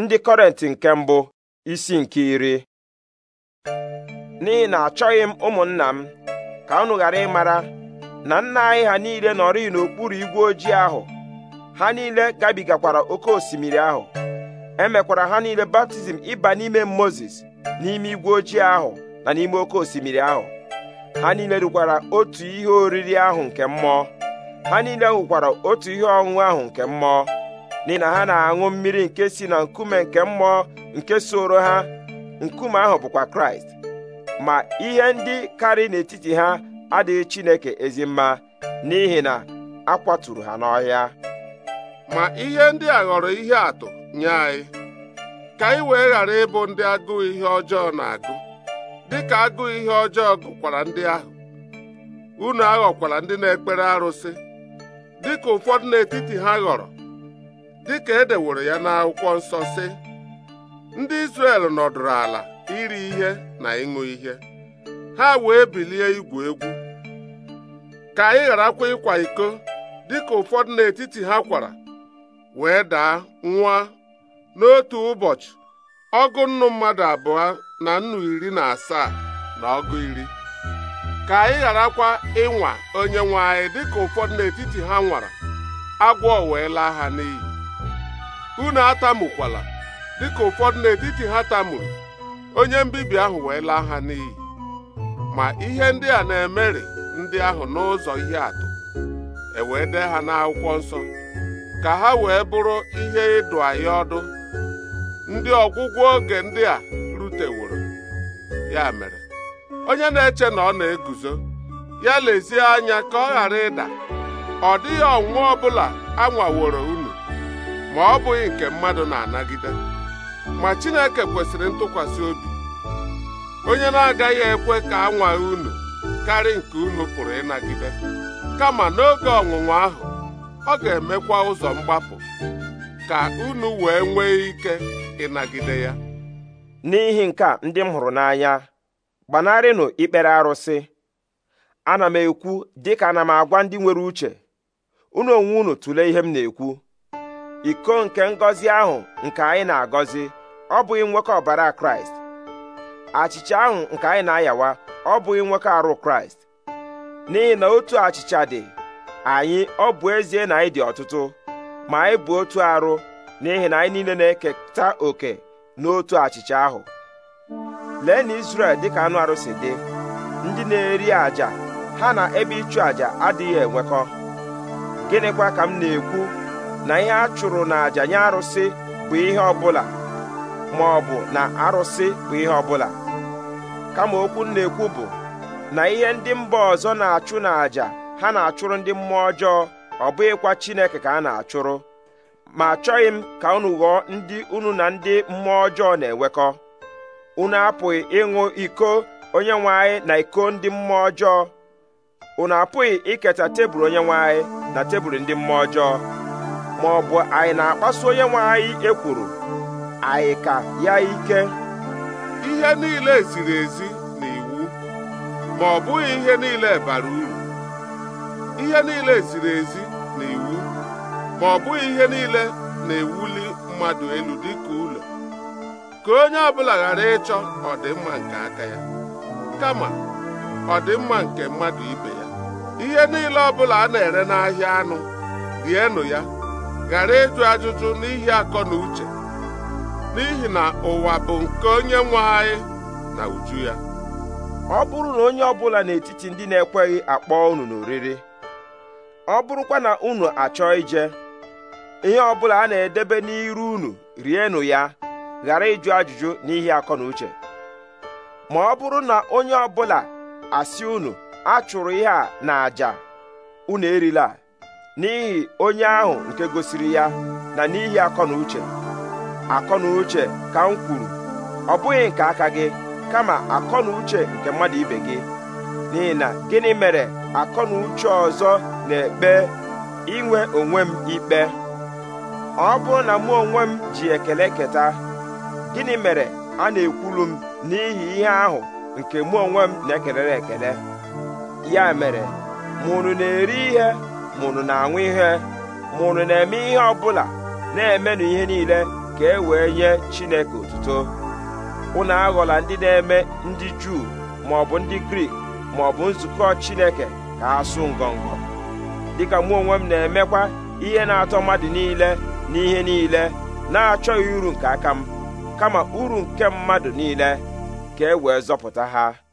ndị kọrenti nke mbụ isi nke iri n'ihi na achọghị m ụmụnna m ka unu ghara ịmara na nna anyị ha niile nọrị n'okpuru igwe ojii ahụ ha niile gabigakwara oke osimiri ahụ emekwara ha niile baptizim ịba n'ime moses n'ime igwe ojii ahụ na n'ime oke osimiri ahụ ha niile rikwara otu ihe oriri ahụ nke mmụọ ha niile hụkwara otu ihe ọṅụṅụ ahụ nke mmụọ n'ihi na ha na-aṅụ mmiri nke si na nkume nke mmụọ nke soro ha nkume ahụ bụkwa kraịst ma ihe ndị karị n'etiti ha adịghị chineke ezi mma n'ihi na a kwaturu ha n'ọhịa ma ihe ndị a ghọrọ ihe atụ nye anyị ka anyị wee ghara ịbụ ndị agụụ ihe ọjọọ na-agụ dịka agụụ ihe ọjọọ gụkwara ndị ahụ unu aghọkwara ndị na-ekpere arụsị dịka ụfọdụ n'etiti ha ghọrọ dị ka e deworo ya n'akwụkwọ nsọ sị ndị Izrel nọdụrụ ala iri ihe na ịṅụ ihe ha wee bilie igwu egwu ka anyị gharakwa ịkwa iko dịka ụfọdụ n'etiti ha kwara wee daa nwa n'otu ụbọchị ọgụ nnu mmadụ abụọ na nnu iri na asaa na ọgụ iri ka anyị gharakwa ịnwa onye nwe anyị dịka ụfọdụ n'etiti ha nwara agwọ wee laa ha n'iyi unu dị dịka ụfọdụ n'etiti ha tamuru onye mbibi ahụ wee laa ha n'iyi ma ihe ndị a na-emeri ndị ahụ n'ụzọ ihe atụ e dee ha n'akwụkwọ nsọ ka ha wee bụrụ ihe ịdụ anyị ọdụ ndị ọgwụgwọ oge ndị a ruteworo ya mere onye na-eche na ọ na-eguzo ya lezie anya ka ọ ghara ịda ọ dịghị ọnwụnwa ọbụla anwaworo unu ma ọ bụghị nke mmadụ na-anagide ma Chineke kwesịrị ntụkwasị obi onye na-agaghị ekwe ka a nwaghị unu karị nke unu pụrụ ịnagide kama n'oge ọnwụnwa ahụ ọ ga-emekwa ụzọ mgbapụ ka unu wee nwee ike ịnagide ya n'ihi nke a ndị m hụrụ n'anya gbanarịnụ ikpere arụsị ana m ekwu dịka ana m agwa ndị nwere uche unu onwe unu tụlee ihe m na-ekwu iko nke ngọzi ahụ nke anyị na-agọzi ọ bụghị nwoke ọbara kraịst achịcha ahụ nke anyị na-ayawa ọ bụghị nwekọ arụ kraịst n'ihi na otu achịcha dị anyị ọ bụ ezie na anyị dị ọtụtụ ma anyị bụ otu arụ n'ihi na anyị niile na-eketa oke n'otu achịcha ahụ lee na Izrel ka anụ arụ si dị ndị na-eri àjà ha na ebe ịchụ àjà adịghị enwekọ gịnịkwa ka m na-ekwu na ihe a chụrụ n'àjà nye arụsị bụ ihe ọbụla ma ọ bụ na arụsị bụ ihe ọbụla kama okwu na-ekwu bụ na ihe ndị mba ọzọ na-achụ n'àjà ha na-achụrụ ndị mmụọ ọjọọ ọ bụghịkwa Chineke ka a na-achụrụ ma achọghị m ka unu ghọọ ndị unu na ndị mmụọ ọjọọ na-enwekọ unu apụghị ịṅụ iko onye nwe anyị na iko ndị mmụọ ọjọọ unu apụghị iketa tebụl onye nwe anyị na tebụl ndị mmụọ ọjọọ ma ọ bụ anyị na-akpasu onye nwe anyị ekwuru anyị ka ya ike ihe niile ziri ezi na iwu ma ọ bụghị ihe niile bara uru ihe niile ziri ezi na iwu ma ọ bụghị ihe niile na-ewuli mmadụ elu dịka ụlọ ka onye ọbụla ghara ịchọ ọdịmma nke aka ya kama ọdịmma nke mmadụ ibe ya ihe niile ọbụla a na-ere n'ahịa anụ rienụ ya ghara ịjụ ajụjụ n'ihi akọ na uche n'ihi na ụwa bụ nke onye nwe anyị na uju ya ọ bụrụ na onye ọbụla n'etiti ndị na-ekweghị akpọ unu n'oriri ọ bụrụkwa na unu achọ ije ihe ọbụla a na-edebe n'iru unu rienụ ya ghara ịjụ ajụjụ n'ihi akọ na uche ma ọ bụrụ na onye ọbụla asị unu achụrụ ihe a na àjà unu erila n'ihi onye ahụ nke gosiri ya na n'ihi akọ na uche akọ na uche ka m kwuru ọ bụghị nke aka gị kama akọ na uche nke mmadụ ibe gị n'ihi na gịnị mere akọ na uche ọzọ na-ekpe inwe onwe m ikpe ọ bụrụ na mụ onwe m ji ekele keta gịnị mere a na-ekwulu m n'ihi ihe ahụ nke mụ onwe m na-ekelere ekele ya mere ma unu na-eri ihe mụnụ na anwụ ihe mụnụ na-eme ihe ọbụla na-emenụ ihe niile ka e wee nye Chineke otuto unu aghọla ndị na-eme ndị Juu maọbụ ndị Grik maọbụ nzukọ Chineke ka asụ sụ ngọngọ dịka mụ onwe m na-emekwa ihe na-atọ mmadụ niile na ihe niile na-achọghị uru nke aka m kama uru nke mmadụ niile ka e wee zọpụta ha